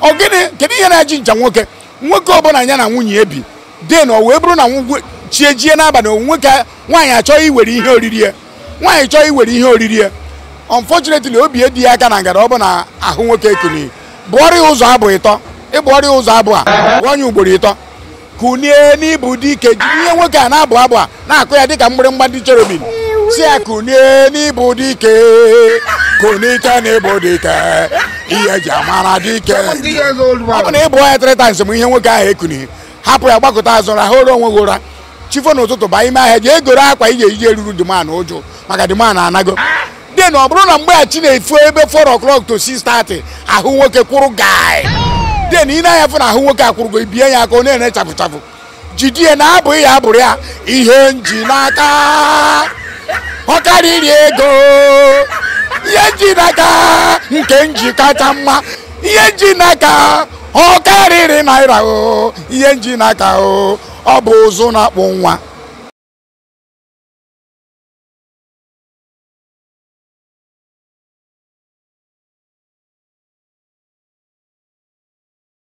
ọ gịnị kedu ihe na-eji ncha nwoke nwoke ọbụla ya na nwunye ebi den o wee bụrụ na chie jie n'abalị nwoke nwaanyị achọghị iwere ihe oriri ya nwaanyị chọọ iwere ihe oriri ya unfortunately obi edi ya aka na ngara ọ bụ na ahụ nwoke kuni bụọrọ ụzọ abụ ịtọ ịbụ ya ụzọ abụ a onye ugboro ịtọ kunie n'ibu dike jiri ihe nwoke a na-abụ abụ a na-akụ ya dịka mgbịrịmgba ndị cherubin si ya kunie n'ibu ike kunike n'ibu dike ihe eji amara dike ọ bụ na ịbụ ọhịa trịta nsem ihe nwoke ahụ ekunighị hapụ ya gbakọta azụ ra ha ụra onwe gị ụra chifo n'ụtụtụ ba ime ahịa ga-egoro akwa ije ije ruru diman ụjụ maka diman anago de na ọ bụrụ na mgbeghachi na-efu ebe 4 o'clock to 6:30 ahụ nwoke kwụrụ gaị de na ị na-anya fụ na ahụ nwoke akwụrụgo ibie ya aka ọ na-ere chafụ jidie na abụghị ya abụrụ ya ihe nji n'aka ọ karịrị ego ihe nji n'aka nke nji kacha mma ihe nji n'aka ọ karịrị naira o ihe nji n'aka o ọ bụ ụzụ na-akpụ nwa